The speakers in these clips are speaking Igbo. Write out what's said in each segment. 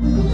you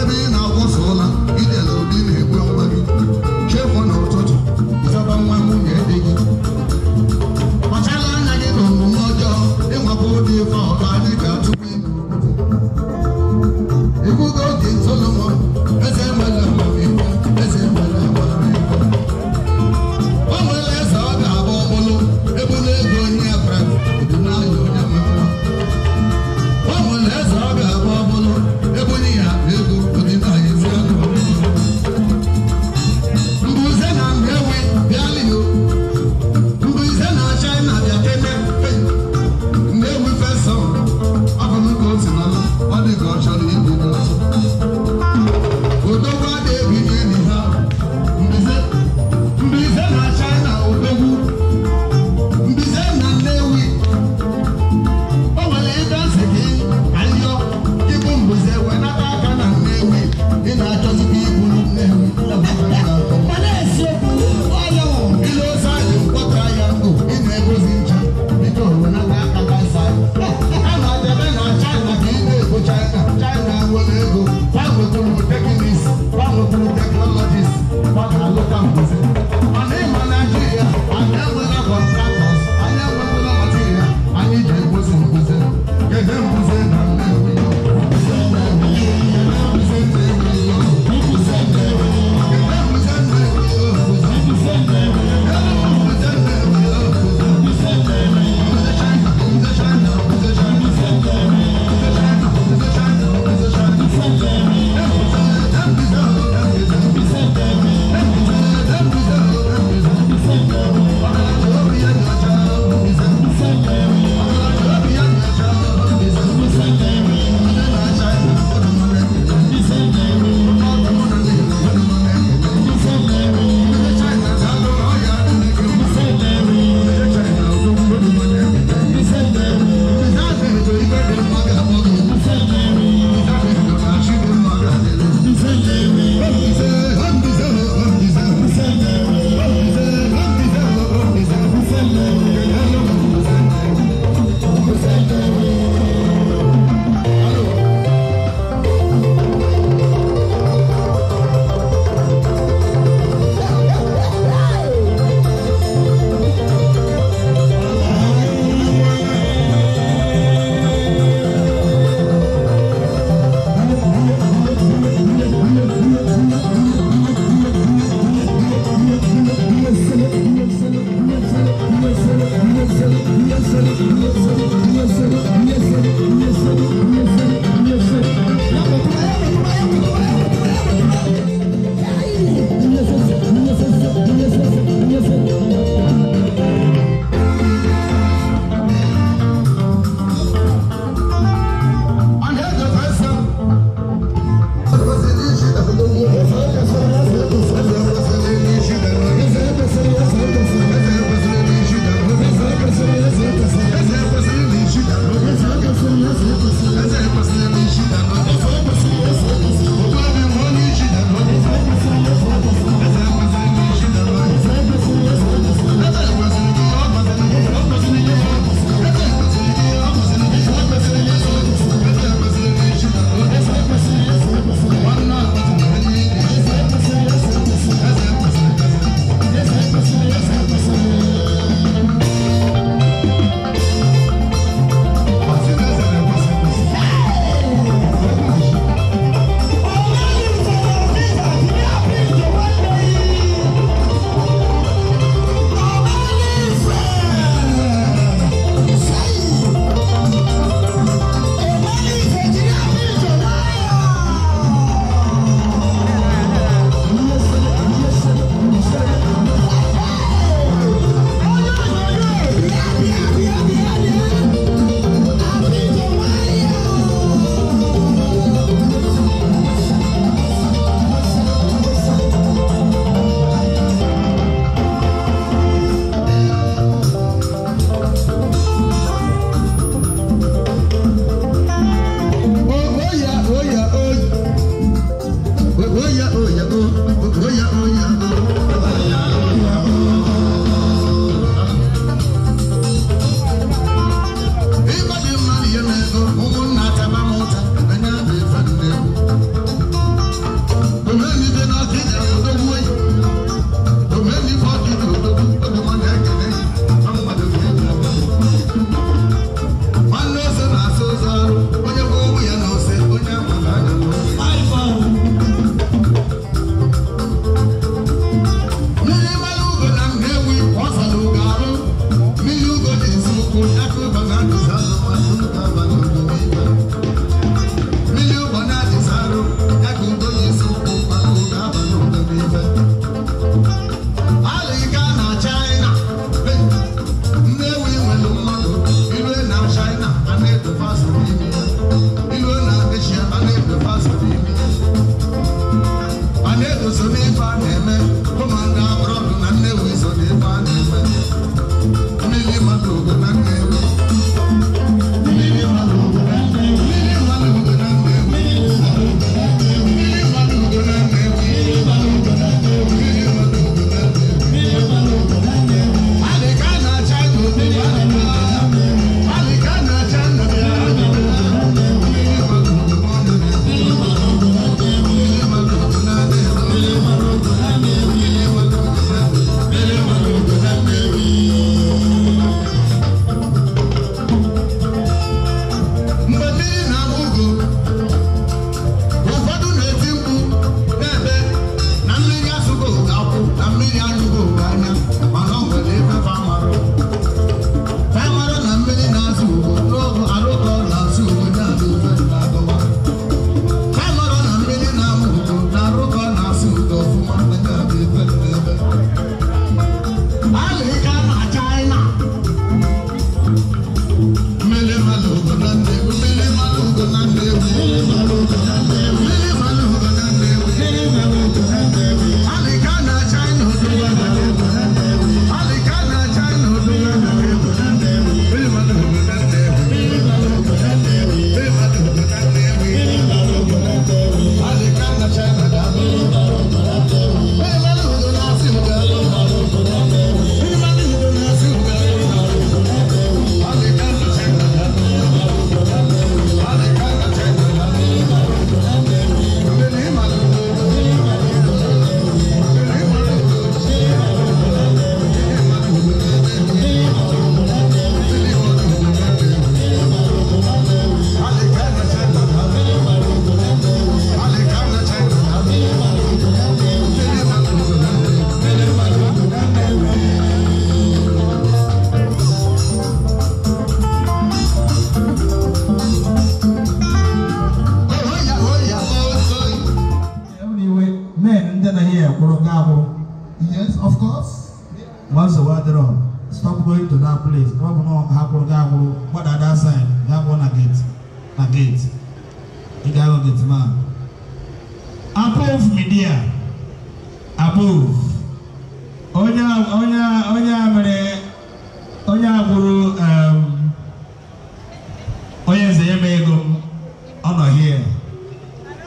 heaven. I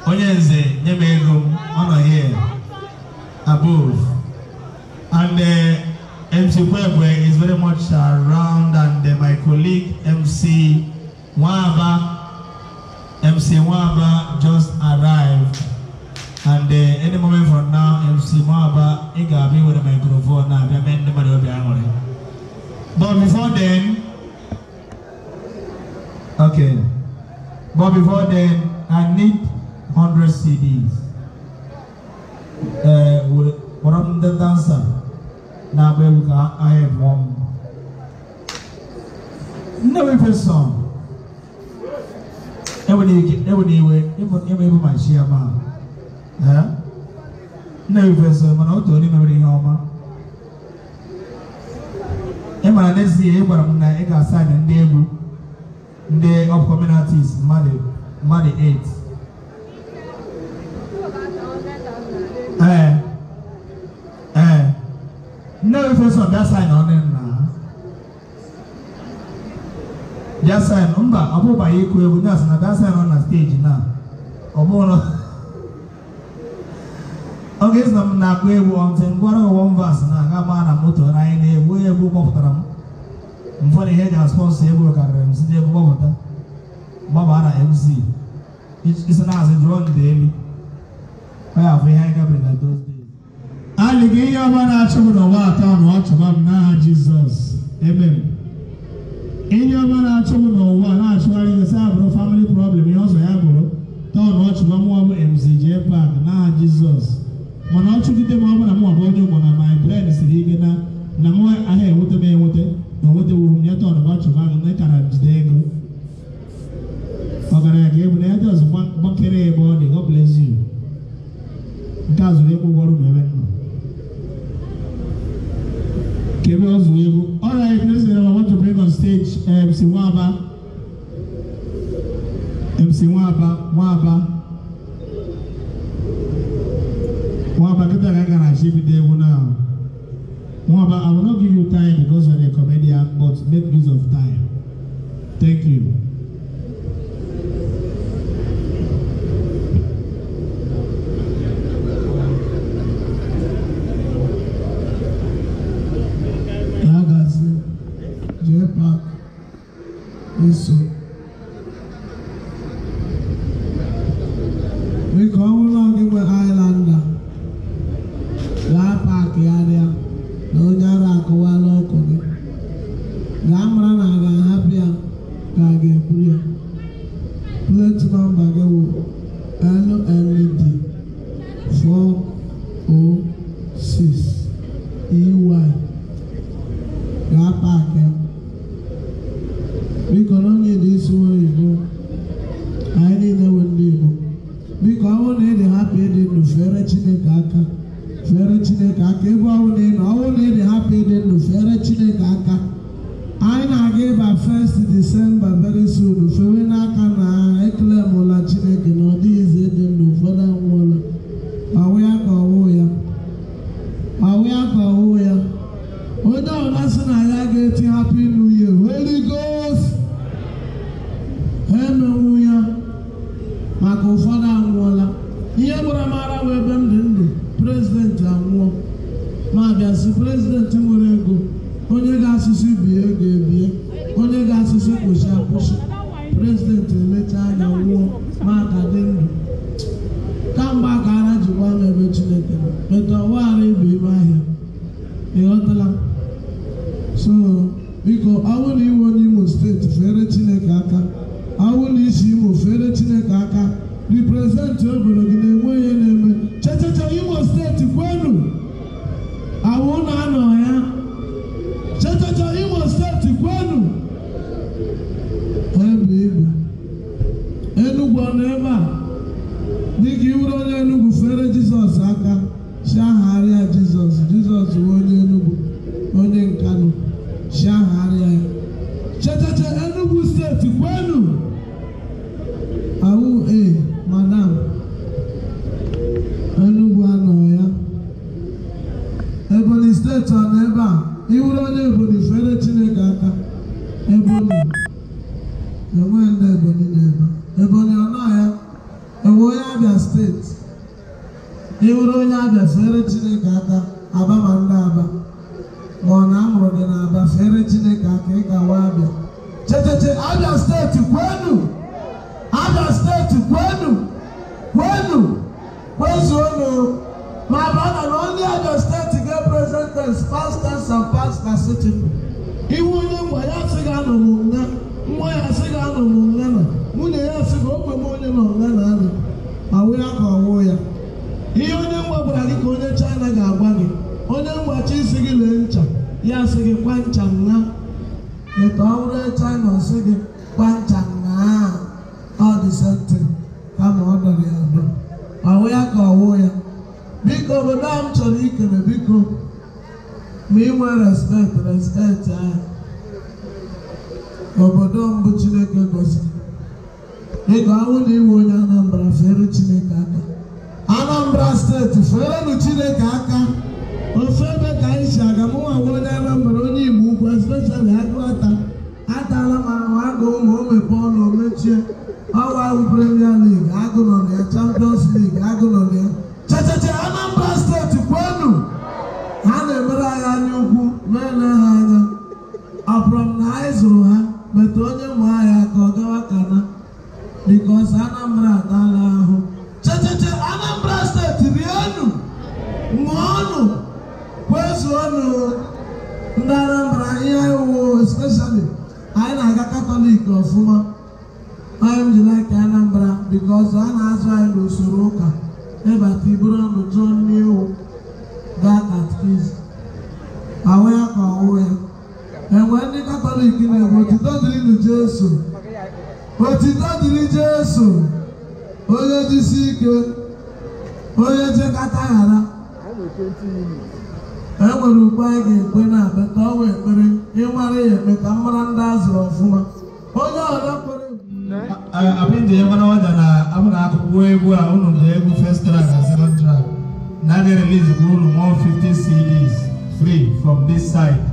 onye nze nye m ego m ọ nọ here above and uh, MC Kwebwe is very much around and uh, my colleague MC Nwaba MC Nwaba just arrived and uh, any moment from now MC Nwaba ị ga-abịa were microphone na-abịa mee ndị mmadụ obi aṅụrị but before then okay but before then I need 100 CDs ee wee kpọrọ m ndị dansa na-agba egwu ka anyị mụọ m Nnewi Faison ewere iwe ịma ebe ma chi ya ma Nnewi Faison mana otu onye mewere ihe ọma ị mara n'ezie ị gwara m na ị ga-asa ndị egwu ndị upcoming artists mmadụ 8 Nne ee, Nnewi face on that side na ọ na-enwe na that side mba ọ bụbaghị ịkụ egwu ya asị na that side ọ na steeji na ọ bụrụ ọ ga-esi na m na-akụ egwu ọ ọntị ngwara ọwọm asị na-aga maa na moto na anyị na-egbu egwu kpọpụtara m mfọdụ ihe eji aspọnsọ egwu karịrị m site egwu kpọpụta na mc isi na-azụ jụọ ndị elu adị afọ ihe ọma na-achụ m n'ụwa atọ na ọchụma m n'aha Jizọs m. ihe ọma na-achụ m n'ụwa na esi abụrụ family problem ihe ọzọ ya bụrụ tọọ na ọchụma mmụọ m emziji n'aha Jizọs mana ọ chụgide m ọ bụla m ọbụ onye ụgbọ na my siri ike na na aha enweta enweta na nwetawuru nye tọọ na ọchụma m m ego na ya Gabriel Zuyebu. All right, next I want to bring on stage eh, MC Waba. MC Waba, Waba. agha anyị ukwu mee na ha anya m na anyị zụrụ ha meta onye nwe anyị aka ọ gawa kana bikos Anambra adaala 50 CDs free from this side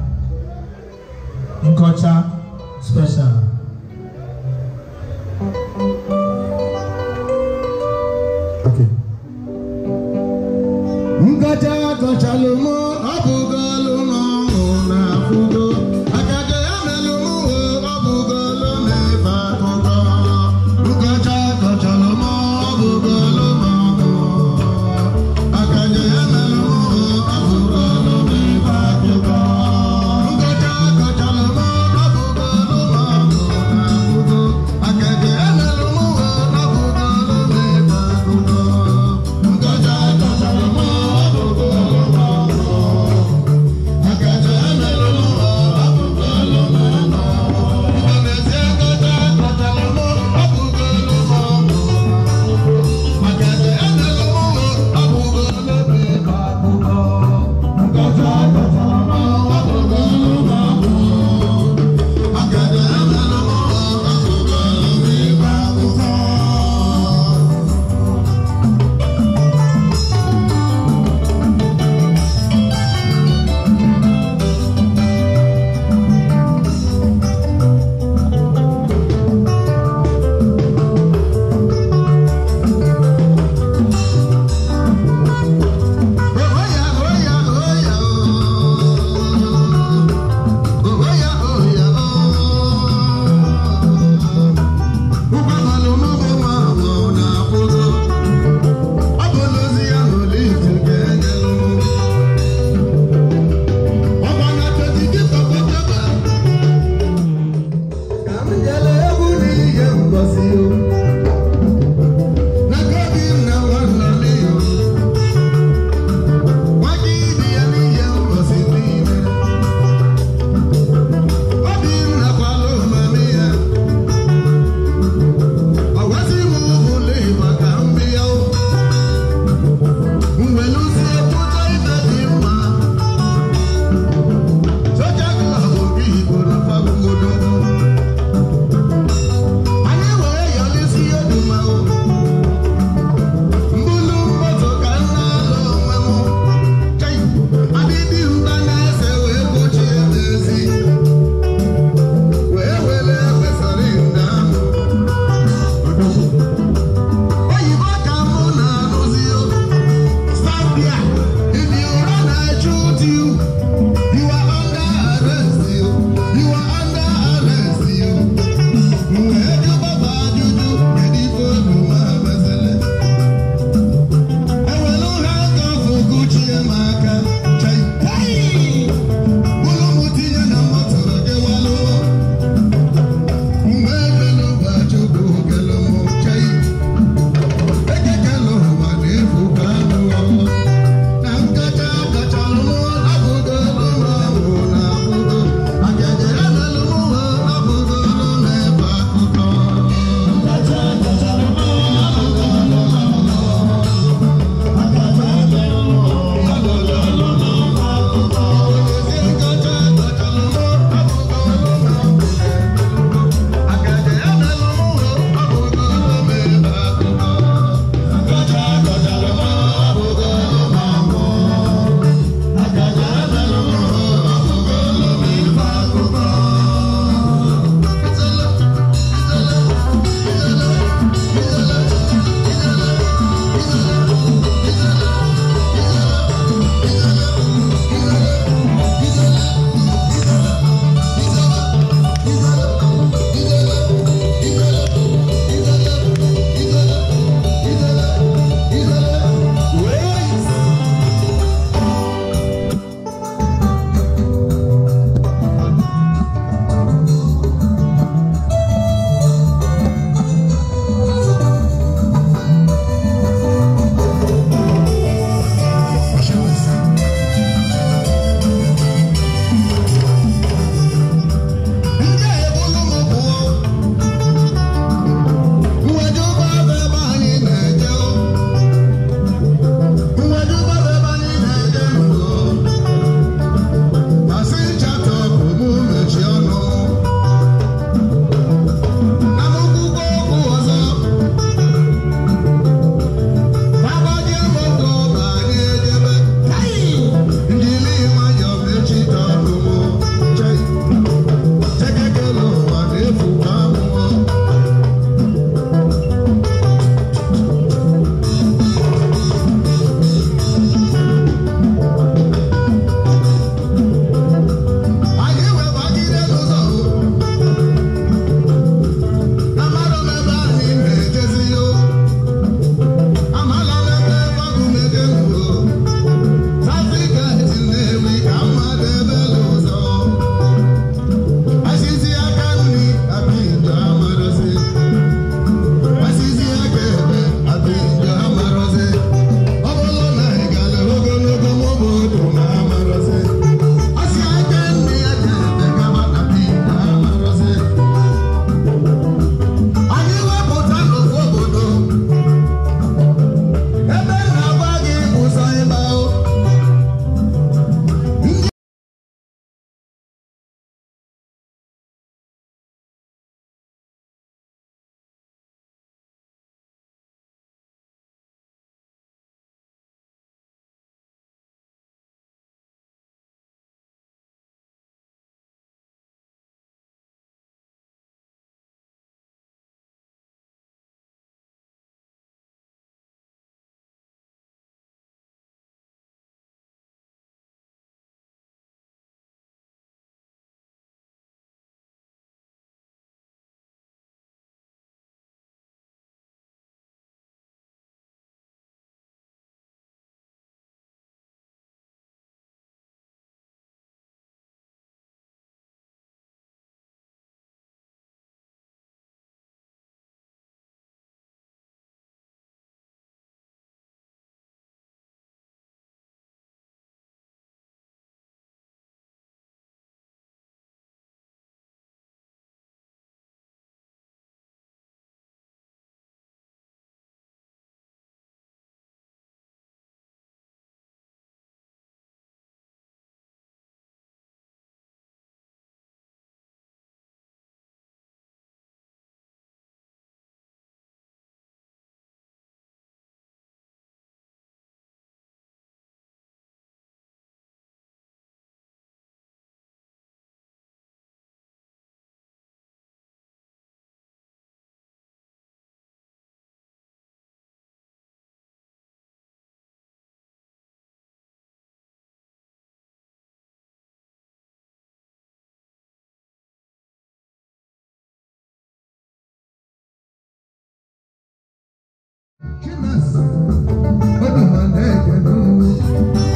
But the man, they can do.